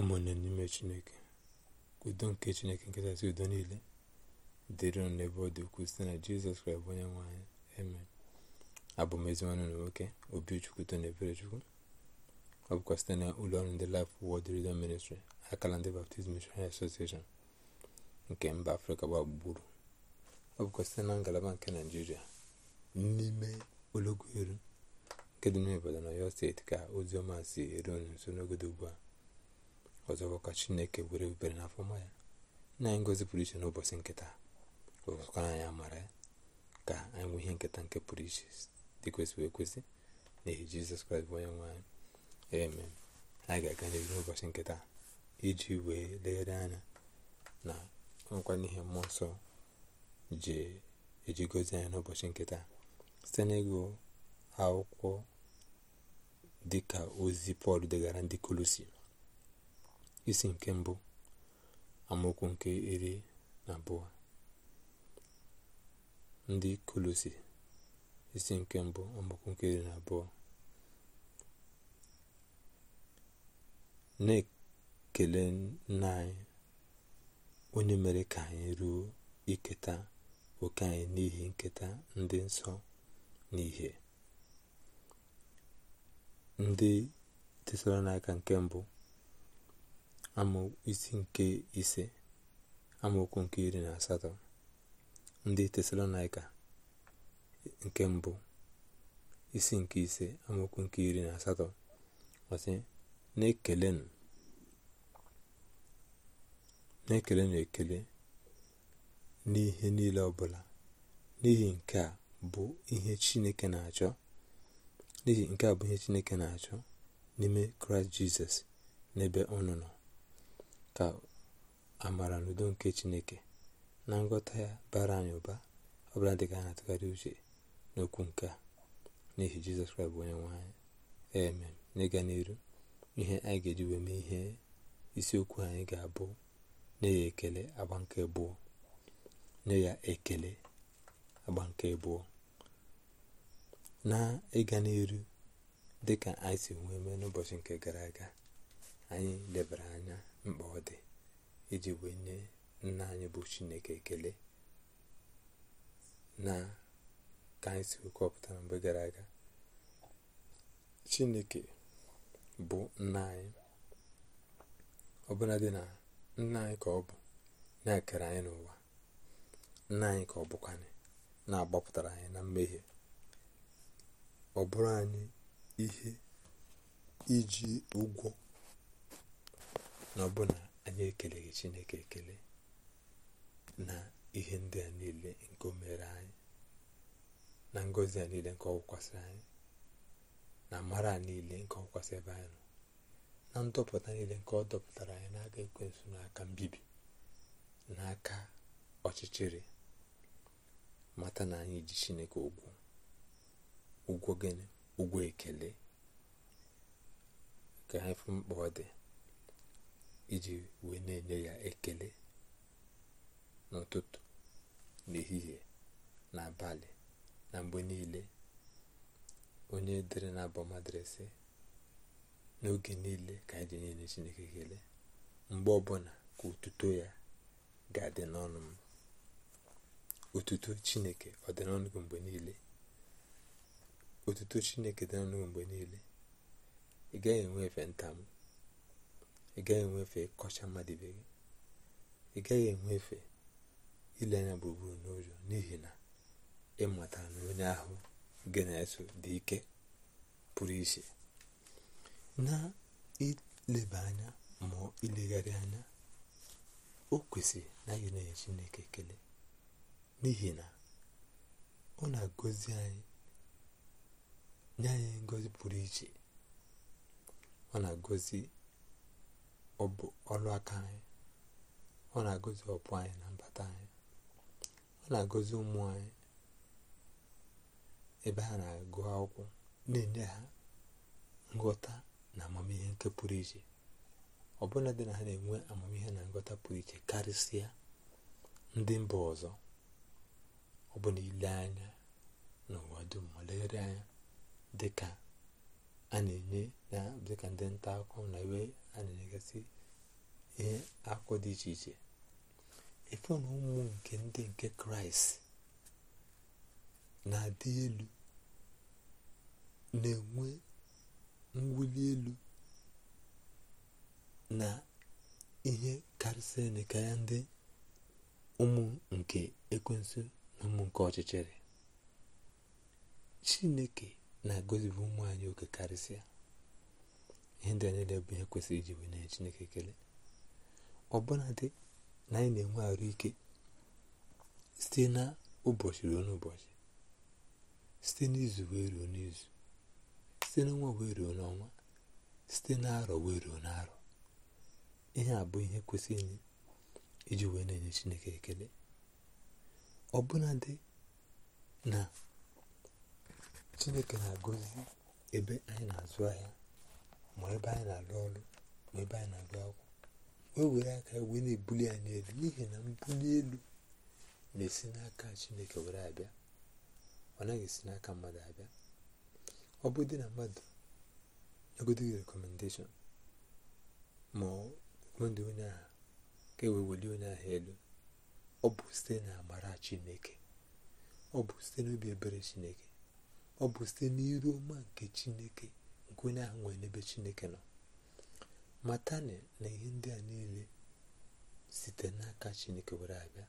ụmụnne n'ime chineke udo nke chineke nkachasị udo niile dịrị unu n'ebe ọ dị ukwuu site na jizọs kraịst bụ onye nwaanyị eme abụ m eziwanụ na nwoke obichukwu tona eberechukwu ọ bụkwa site na ụlọ ọrụ ndị Life Word Radio Ministry akala ndị Baptist Missionary Association nke mba afrịka gbagburu ọ bụkwa site na ngalaba nke naijiria n'ime ologo eru nke dị n'obodo na yo steeti ka ọma si eru nso n'ogodo ugbu a ọzọkwa ka chineke were ebere na afọma ya na anyị ngozi pụrụ iche n'ụbọchị nkịta ụkara anyị amara ya ka anyị nwee ihe nketa nke pụrụ iche dị kwesịrị ekwesị n'ihi jizọs kraịst bụ onye nwe anyị amen anyị ga-aga n'ihu n'ụbọchị nketa iji wee legharị anya na nkwa ihe mmụọ nsọ ji eji gozi anyị n'ụbọchị nketa site n'ịgụ akwụkwọ dịka ozi pọl degara ndị kolosi isi nke mbụ amaokwu nke iri na abụọ ndị kolosi isi nke mbụ amaokwu nke iri na abụọ na-ekele nna anyị onye mere ka anyị ruo iketa oke anyị n'ihi nketa ndị nsọ n'ihe ndị n'aka nke mbụ amaokwu nke ise amaokwu nke iri na asatọ ndị tesalonaika nke mbụ isi nke ise amaokwu nke iri na asatọ ọsị na-ekelenụ na-ekelenụ ekele n'ihe niile ọbụla n'ihi nke a bụ ihe chineke na-achọ n'ihi nke a bụ ihe chineke na-achọ n'ime kraịst jizọs n'ebe ọnụ nọ ka amara na udo nke chineke na ngọta ya bara anyị ụba ọbụla dị ka a na-atụgharị uche n'okwu nke a n'ihi jizọs kraịst bụ onye nwe anyị eme n'ịga n'iru ihe anyị ga-eji wee mee ihe isiokwu anyị ga-abụ nye ekele agba nke abụọ nye ya ekele agba nke bụọ na ịga n'iru dịka anyị si nwee mee n'ụbọchị nke gara aga anyị lebara anya mkpa ọ dị iji wee nye nna anyị bụ chineke ekele na ka anyị si kọpụta mgbe gara aga chineke bụ nna anyị ọbụla dị na nna anyị ka ọ bụ na-ekere anyị n'ụwa nna anyị ka ọ bụkwanye na-agbapụtara anyị na mmehie ọ bụrụ anyị ihe iji ụgwọ na ọbụna anyị ekeleghị chineke ekele na ihe ndị a niile nke o mere anyị na ngọzi a niile nke ọkwụkwasịrị anyị na mara a niile nke ọkwụkwasị ebe anyị nọ na ndọpụta niile nke ọ dọpụtara anyị n'aka ekwensu n'aka mbibi n'aka ọchịchịrị mata na anyị ji chineke ụgwọ ụgwọ gịnị ụgwọ ekele ka anyị fụ mkpa ọ dị iji wee na-enye ya ekele n'ụtụtụ n'ehihie n'abalị na mgbe niile onye dere na abọmadịrịsị n'oge niile ka anyị ji na Chineke ekele mgbe ọbụla ka otuto ya ga-adị n'ọnụ m otuto Chineke ọ dị n'ọnụ mgbe niile otuto Chineke dị n'ọnụ mgbe niile ị gaghị enwe efe nta m ị gaghị enwefe kọcha mmadụ ibe gị ị gaghị enwefe ile anya gburugburu n'ụjọ n'ihi na ịmata na onye ahụ gị na-eso dị ike pụrụ iche na ileba anya ma ilegharị anya o kwesịrị na anyị na-enye Chineke ekele n'ihi na ọ na-agọzi anyị nye anyị pụrụ iche ọ na-agọzi ọ bụ ọrụ aka anyị ọ na-agọzi ọpụ anyị na mbata anyị ọ na agozi ụmụ anyị ebe ha na-agụ akwụkwọ na-enye ha ngọta na amamihe nke pụrụ iche ọbụla dị na ha na-enwe amamihe na ngọta pụrụ iche karịsịa ndị mba ọzọ ọ bụ na ile anya n'ụwa dum ma legharị anya dị ka a na-enye na ka ndị nta akụkọ na iwe a na-enyegasị ihe akụ dị iche iche efe na ụmụ nke ndị nke kraịst na-adị elu na-enwe mwuli elu na ihe karịsịrị dịka ya ndị ụmụ nke ekwensu na ụmụ nke ọchịchịrị chineke na gosipụ ụmụ anyị oke karịsịa ihe ndị anyị na-ebu ihe kwesịrị iji wee nye chineke ekele ọbụna dị na anyị na-enwe arụ ike site na ụbọchị ruo n'ụbọchị site n'izu wee ruo n'izu site n'ọnwa wee ruo n'ọnwa site n'arọ wee ruo n'arọ ihe a bụ ihe kwesịrị iji wee na-enye chineke ekele ọbụna dị na chineke na-agọzi ebe anyị na-azụ ahịa ma ebe anyị na-alụ ọrụ ma ebe anyị na-agụ akwụkwọ wee were aka wee na-ebuli anyị elu n'ihi na mbuli elu na-esi n'aka chineke were abịa ọ naghị esi n'aka mmadụ abịa ọ bụ dị na mmadụ egodoghị rekomendeshọn ma rekomendị onye ahụ ka e welie onye ahụ elu ọ bụ site na amara chineke ọ bụ site n'obi ebere chineke ọ bụ site n'iru ọma nke chineke nke onye ahụ nwere n'ebe chineke nọ matani na ihe ndị a niile site n'aka chineke were abịa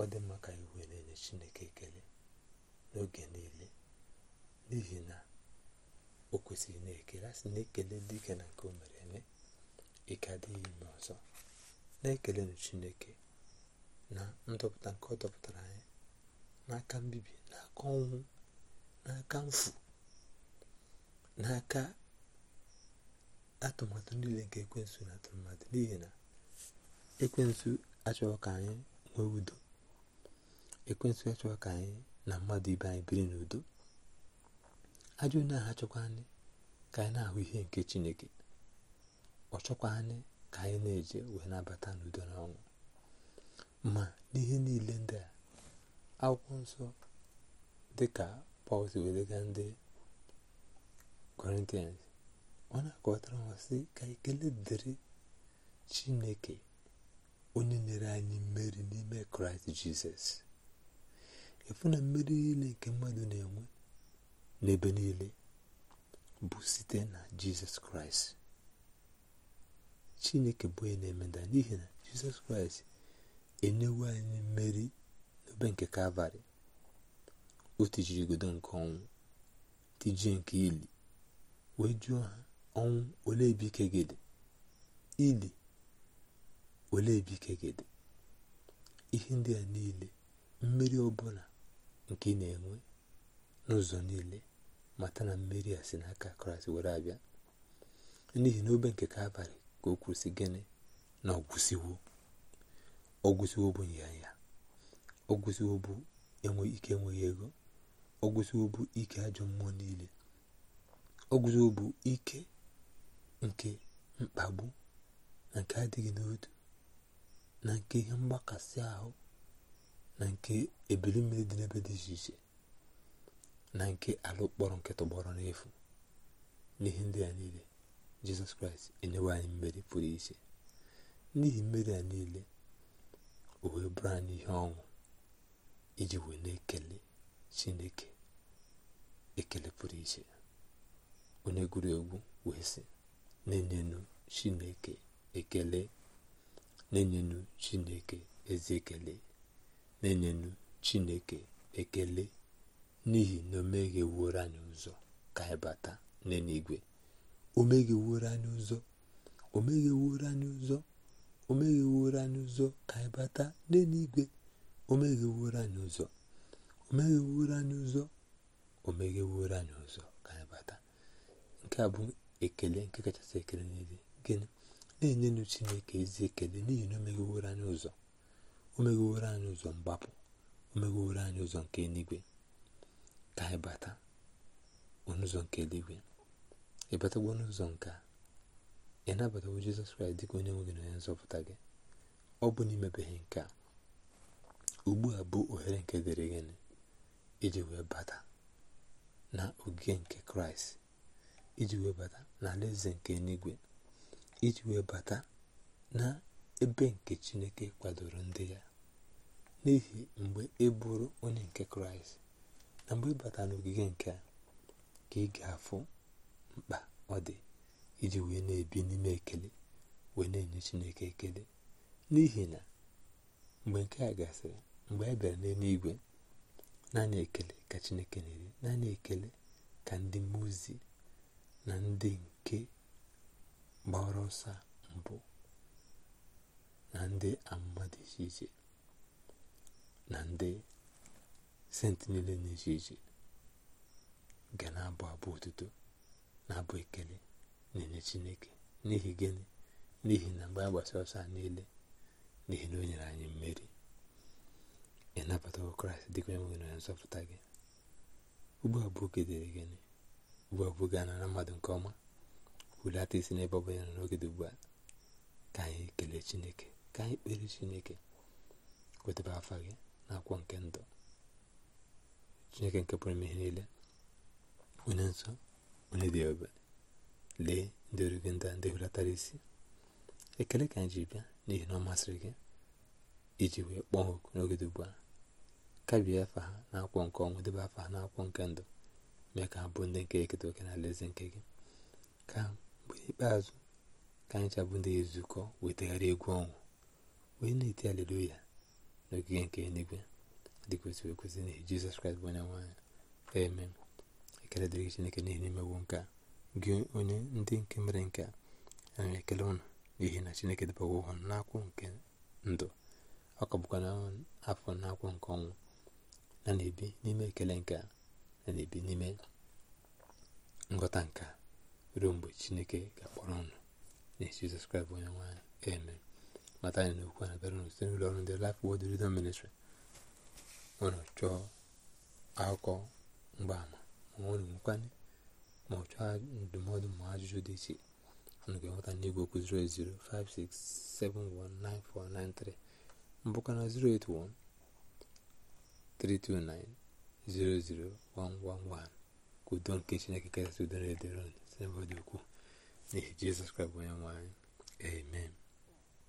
ọ dị mma ka iwe na-enye chineke ekele n'oge niile n'ihi na o kwesịrị na-ekele asị na-ekele dike na nke o mere eme ike adịghị ime ọzọ na-ekelenụ chineke na ndọpụta nke ọ dọpụtara anyị n'aka mbibi aka ọnwụ n'aka mfu n'aka atụmatụ niile nke ekwensu na atụmatụ n'ihi na ekwensu achọghị ka anyị nwee udo ekwensu achọghị ka anyị na mmadụ ibe anyị biri n'udo ajọ onye ahụ achọkwa anyị ka anyị na-ahụ ihe nke chineke ọ anyị ka anyị na-eje wee nabata n'udo na ọnwụ ma n'ihe niile ndị a akwụkwọ nsọ dịka Paul si ndị Corinthians ọ na-akọwatara sị ka ekele dịrị Chineke onye nyere anyị mmeri n'ime Kraịst Jizọs efu na mmeri niile nke mmadụ na-enwe n'ebe niile bụ site na Jizọs Kraịst Chineke bụ onye na-emeda n'ihi na Jizọs Kraịst enyewo anyị mmeri n'obe nke Kalvarị o tijirigodo nke ọnwụ tijie nke ili wee jụọ ha ọnwụ ole ebe ike ili ole ebe ike ihe ndị a niile mmeri ọbụla nke ị na-enwe n'ụzọ niile mata na mmeri a si n'aka kraịst were abịa n'ihi na obe nke abalị ka o kwụsị gịnị na ọgwụsiwo ọgwụsiwo bụ nya ya ọgwụsiwo bụ enwe ike enweghị ego oguzobu ike ajọ mmụọ niile oguzobu ike nke mkpagbu na nke adịghị n'otu na nke ihe mgbakasị ahụ na nke ebili mmiri dị n'ebe dị iche iche na nke alụkpọrọ nke tọgbọrọ n'efu n'ihe ndị a niile jizọs kraịst enyewe anyị mmeri pụrụ iche n'ihi mmeri a niile o wee bụrụ anyị ihe ọṅụ iji wee na-ekele chineke ekele pụrụ iche onye gụrụ egwu wee sị na chineke ekele na-enyenu chineke ezi ekele na-enyenu ekele n'ihi na o megheworo anyị ụzọ ka anyị bata anyị ụzọ ka anyị bata n'eluigwe omeghe anyị ụzọ o megheworo anyị ụzọ o megheworo ụzọ ka anyị bata nke a bụ ekele nke kachasị ekele niile gịnị na-enyenụ chineke ezi ekele n'ihi na o megheworo anyị ụzọ o megheworo anyị ụzọ mgbapụ o megheworo anyị ụzọ nke eluigwe ka anyị bata n'ụzọ nke eluigwe ịbatagwo n'ụzọ nke ị nabatawo jizọs kraịst dịka onye nwe gị na onye nzọpụta gị ọ bụ na imebeghị nke a ugbu a bụ ohere nke dịrị gịnị iji wee bata na nke kraịst iji wee bata na alaeze nke eluigwe iji wee bata na ebe nke chineke kwadoro ndị ya n'ihi mgbe ị e bụrụ onye nke kraịst na mgbe ị bata n'ogige nke a ka ị ga-afụ mkpa ọ dị iji wee na-ebi n'ime ekele wee na-enye chineke ekele n'ihi na mgbe nke a gasịrị mgbe a e bịara n'eluigwe naanị ekele ka chineke na-eri naanị ekele ka ndị mozi na ndị nke gbara ọsọ mbụ na ndị amụma iche iche na ndị senti niile na-iche iche iche ga na-abụ abụ otuto na-abụ ekele na-enye chineke n'ihi gịnị n'ihi na mgbe a gbasara ọsọ niile n'ihi na o nyere anyị mmeri ị nabatara kraịst dịka onye nwe na onye nzọpụta gị ugbu a bụ oge dịrị gịnị ugbu a bụ oge anara mmadụ nke ọma hulata isi n'ebe ọ bụla nọ n'oge dị ugbu a ka anyị kelee chineke ka anyị kpere chineke kwetaba afa gị na akwụkwọ nke ndụ chineke nke pụrụ ihe niile onye nsọ onye dị ebere lee ndị origi ndị ndị hulatara isi ekele ka anyị ji bịa n'ihi na ọ masịrị gị iji wee kpọọ oku n'oge dị ugbu a kabie afa na n'akwụkwọ nke ọnwụ debe afa na n'akwụkwọ nke ndụ mee ka ha bụ ndị nke eketa oke na alaeze nke gị ka mgbe ikpeazụ ka anyị chabụ ndị ezukọ wetagharị egwu ọnwụ wee na-eti na n'ogige nke eluigwe dị kwesịrị ekwesị na jizọs kraịst bụ onye nwaanyị eme ekele dịrị chineke n'ihi n'imewo nke a gị onye ndị nke mere nke a ekele ụnụ n'ihi na chineke debawa na n'akwụ nke ndụ ọ ka bụkwa na afọ n'akwụ nke ọnwụ a ebi n'ime ekele nke a na-ebi n'ime nghọta nke a ruo mgbe chineke ga-akpọrọ ọnụ na-esi jizọs kraịst onye nwanyị eme mata anyị n'okwu a na-abịara n'ụsite n'ụlọ ọrụ ndị Life Word Redemption ọ nwere chọọ akụkọ mgbaama ma ọ na-enwekwanye ma ọ chọọ ndụmọdụ ma ajụjụ dị iche ga-enweta n'igwe okwu 08056719493 mbụkana 081 329 1 ka udo nke chineke kasị udo na-edere site n'ebe dị ukwuu n'ihi jizọs kraịst bụ onye nwanyị amen